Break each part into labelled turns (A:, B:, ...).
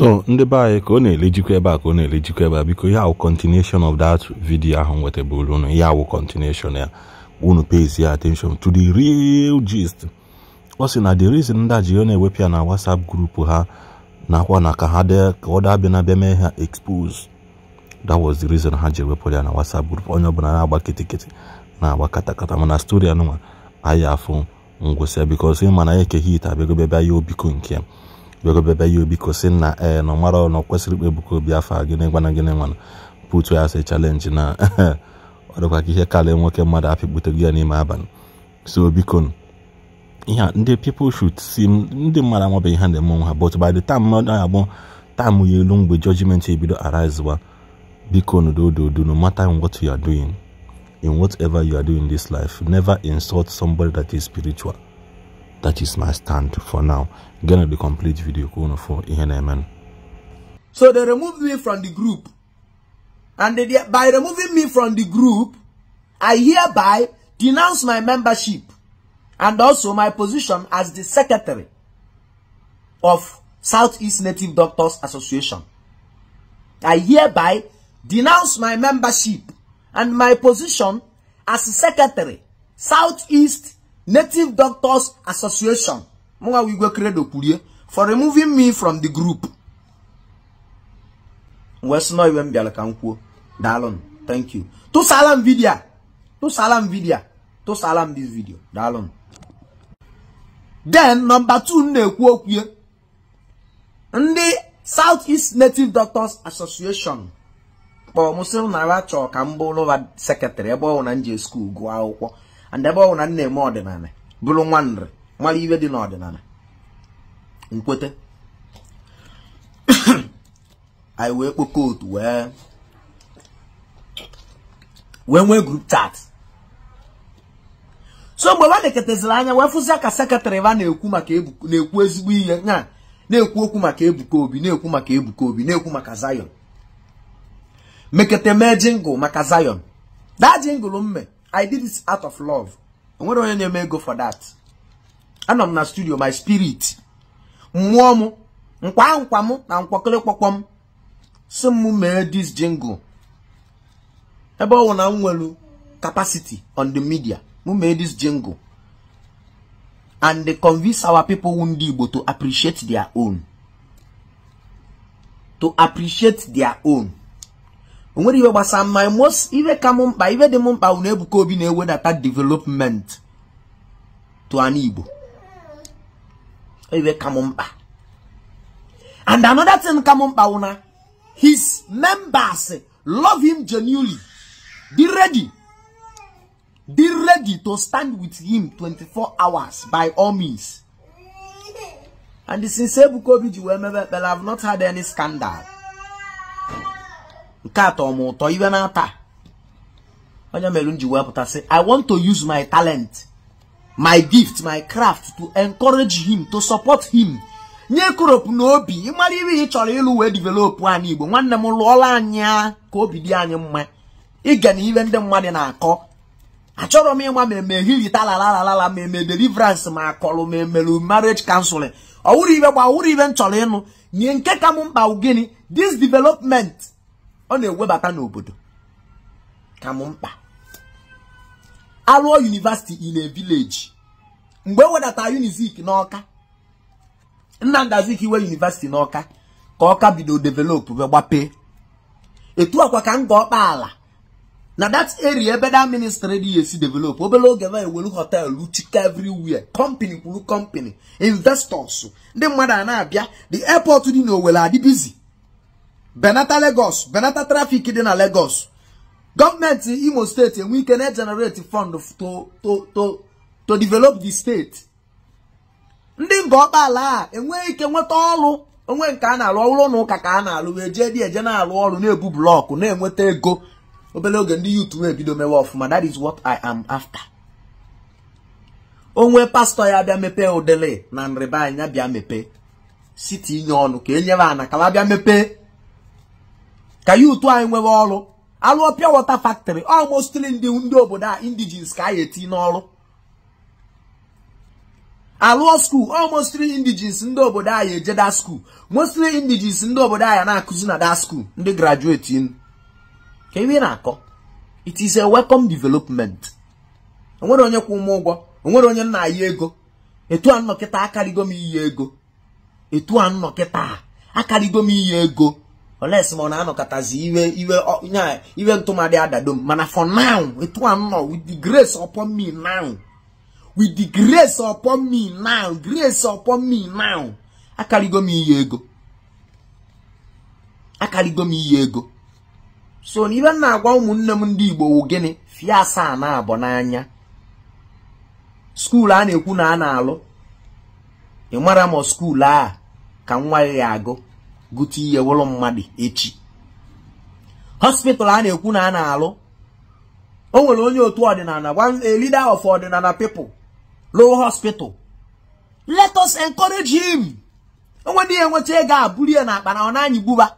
A: so ndị be anyị ka ọ na-elejikwa ebe a ka ọ na-elejikwa ebe a biko ya wụ continuation of that video ahụ nwetabụrụ unu ya wụ continuation ya unu pays ya attention to the real gist ọ sị na the reason ndị ji na-ewepụ ya na whatsapp group ha nakwa na ka ha dee ka ọ dabịa na bịa mee ha expose that was the reason ha ji ewepụ ya na whatsapp group onye ọbụla na-agba kitikiti na-agba katakata mana stori anụnwa anyị afụ ngwụsịa bikos ịma na ya ekeghị ite abịagobe bịa ya obiko nke ya bịagobebe ya obi kosi na ee eh, na ọmara ọnọ kwesịrị ikpe Obi afọ a gịnị gwana gịnị nwana putu ya sị chalenji na ọ dịkwa ka ihe karịa nwoke mmadụ apịkputego ya n'ime abalị so biko ihe ndị people should see ndị mmadụ amabeghị ha na-eme onwe ha but by the time mmadụ ya agbụ taamụ ya elu mgbe judgment ebido arise wa biko dododo no matter in what you are doing in whatever you are doing in this life never insult somebody that is spiritual that is my stand for now gonna the complete video corner for ENMN.
B: so they removed me from the group and they, by removing me from the group i hereby denounce my membership and also my position as the secretary of southeast native doctors association i hereby denounce my membership and my position as secretary southeast Native Doctors Association mụnwa wigwe credo kwurie for removing me from the group wee sị iwe m bịara ka m kwuo daalụ thank you tụsala m vidio tụsala m vidio tụsala m this video daalụ den nọmba two na-ekwu okwue ndị South East Native Doctors Association kpọọ m sị nara chọọ ka m bụrụ sekretarị ebe ọ bụ na m ji skuul gụọ akwụkwọ and ebe ọwụ na nne eme ọdịnala bụrụ nwa nri mara iwe dị n'ọdịnala nkwete anyị wee kpo otu wee wee nwee grup chat so mgbe nwa anya wee fụzia ka sekretarị na-ekwu ezigbo ihe na na-ekwu okwu maka Ebuka Obi na-ekwu maka Ebuka Obi na-ekwu maka Zion mekete mee jingụl maka Zion daa jingụl mme i did this out of love enwere onye na-eme ego for that anọ m na studio my spirit mmụọ m nkwa nkwa m na nkwakọrịkpọkpọ m si m mee this jingle ebe ọ na m nwelu capacity on the media m mee this jingle and they convince our people ndị Igbo to appreciate their own to appreciate their own o nwere iwe gbasara mma most ife ka m mkpa ife dị m mkpa bụ na Ebuka Obi na-ewedata development to an Igbo ife ka m mkpa and another thing ka m mkpa bụ na his members love him genuinely be ready be ready to stand with him 24 hours by all means and since Ebuka Obi ji wee mebe ekpere I have not had any scandal nke atọ m ụtọ iwe na-ata onye mere m ji wepụta sị i want to use my talent my gift my craft to encourage him to support him nye koropu na obi ịmara ihe ị chọrọ ịlụ wee develop anyị igbo nwanne m lụọla anyị ka obi dị anyị mma ịga na ihe ndị mmadụ na-akọ achọrọ m ịma ma eme hilita lala ma eme deliverance ma akọlụ ma emelu marriage counseling ọwụrụ ibe gba wụrụ ibe m chọrọ ịnụ nye nke ka m mkpa gịnị this development ọ na-ewebata n'obodo ka m mkpa arụọ yunivasiti in a village mgbe ewedata wedata unizik n'ọka Nnamdi Azikiwe yunivasiti n'ọka ka ọka bido develop wee gbapee etu akwa ka nga ọkpa ala na that area ebe that ministry dị esi develop obere oge ma ewelu hotel chika everywhere company kwuru company investors ndị mmadụ a na-abịa the airport dị n'Owere adịbizi benata legos benata trafik dị na Lagos gọọmenti Imo steeti enwe ike na-egenerate fund to to to develop the steeti ndị mba ala a enweghị ike nweta ọrụ onwe nke a na-alụ ọrụ na ụka ka a na-alụ wee jee dị eje na-alụ ọrụ na-ebu blọkụ na-enweta ego obere oge ndị yutu ebido mewe ọfụma that is what I am after onwe pastọ ya bịa mepee udele na nrịba anya bịa mepe site inye ọnụ ka e nyere ana ka bịa mepee ka ya anyị nwere ọrụ alụọ pịa wọta factory almostli ndị ndị obodo a indigens ka anyị eti n'ọrụ alụọ skuul almostli indigens ndị obodo anyị eje da skuul mostli indigens ndị obodo anyị na-akụzi na da skuul ndị grajueti ka iwe na-akọ it is a welcome development onwere onye kwụ ụmụ ụgwọ onwere onye nna ya ego etu a nnọkịta akarịgo m iyi ego etu a nnọkịta akarịgo m iyi ego unless ma ọ na-anọkọtazi iwe iwe iwe ntụmadị adado m mana for now etu a nọ with the grace upon me now with the grace upon me now grace upon me now akarịgo m iyi ego akarịgo m iyi ego so na ibe na-agwa ụmụnne m ndị Igbo wụ gịnị fie asaa na abụọ n'anya skuulu a na-ekwu na a na-alụ ị mara m skuulu a ka nwa ya agụ gote ihe wụrụ mmadụ echi hospital a na-ekwu na a na-alụ o nwere onye otu ọdịnala a leader of ọdịnala people rụọ hospital let us encourage him onwe ndị enweta ego a buru ya n'akpa na ọ na-anyị gbuba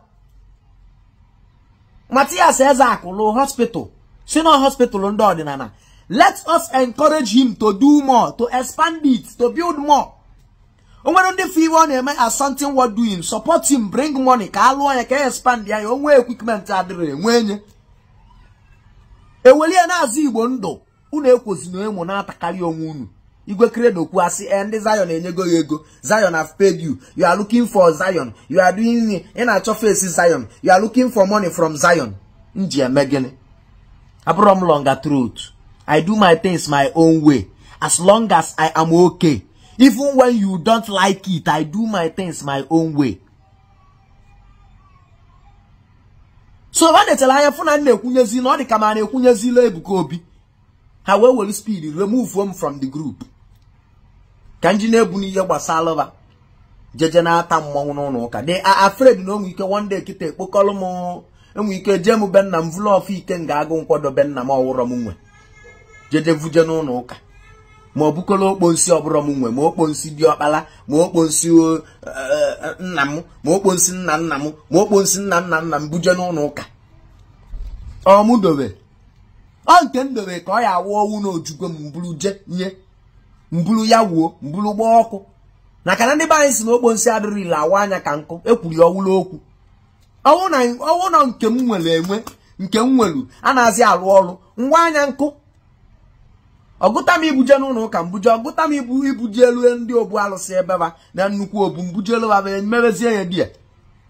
B: Matias Ezeaku rụọ hospital si na hospital ndị ọdịnala let us encourage him to do more to expand it to build more onwere ndị fi iwe ọ na-eme as something worth doing bring money ka a lụọ ya ka e expand ya ya onwe equipment adịrị enwe enye eweli na-azụ igbo ndụ unu ekwozina emo na-atakarị onwe unu igwe kredo kwuo asị e ndị zion enyego ya ego zion have paid you you are looking for zion you are doing ị na-achọ face zion you are looking for money from zion m ji eme gịnị abụrọ m longa truth i do my things my own way as long as i am okay even when you don't like it i do my things my own way so ha netara anya fụ na m na-ekwunyezi na ọ dị ka ma na-ekwunyezila Ebuka Obi ha wee were speed remove from the group ka nji na-ebu n'ihe gbasara ba jeje na-ata mmọnwụ n'ụlọ ụka they are na onwe ike one day kịta ekpokọrọ m enwe ike jee m nna m vụlụ ọfụ ike nga agụ nkwado benna nna m ọwụrọ m nwe jeje vuje n'ụlọ ụka ma ọ bụkọla okponsi ọbụrọ m nwe ma okponsi diọkpala ma okponsi eh, eh, eh, nna m ma nna nna m ma okponsi nna nna nna m buje n'ụlọ ụka ọmụ ọ nke m ka ọ ya awụ ọnwụ na ojugo m mbụrụ je nye mbụrụ ya wuo mbụrụ gbaa ọkụ na na ndị be anyị si na okponsi adịrị ile awụ anya ka nkụ ekwuri ọwụla okwu ọnwụ na nke m nwere enwe nke m nwere a na-azị arụ ọrụ ngwa anya nkụ ọgụta m ibuje n'ụlọ ụka mbuje ọgụta m ibu ibuje elu ndị obu alụsị ebeba na nnukwu obu mbuje elu aba mebezie ya die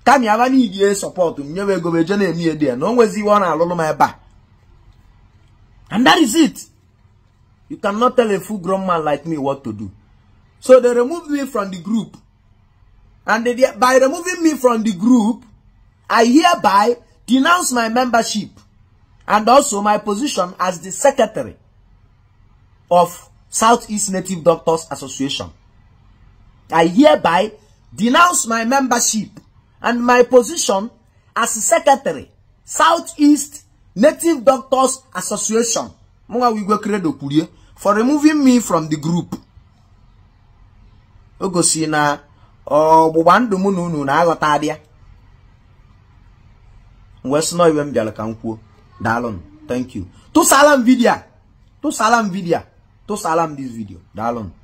B: kami aba n'igie sọpọtụ m nyewe ego beje na-emi ya die na o nwezi iwe ọ na-alụlụ m ebe a and that is it you cannot tell a full grown man like me what to do so they removed me from the group and they, by removing me from the group I hereby denounce my membership and also my position as the secretary of Southeast Native Doctors Association. I hereby denounce my membership and my position as secretary, Southeast Native Doctors Association, for removing me from the group. O gosi na ọgbụgba ndụ mụ na unu na-aghọta abịa. Wee iwe m bịara ka m kwuo. Daalụ, thank you. Tụsala m vidiyo a. Tụsala m vidiyo a. To salam dis video. Dalon. Da,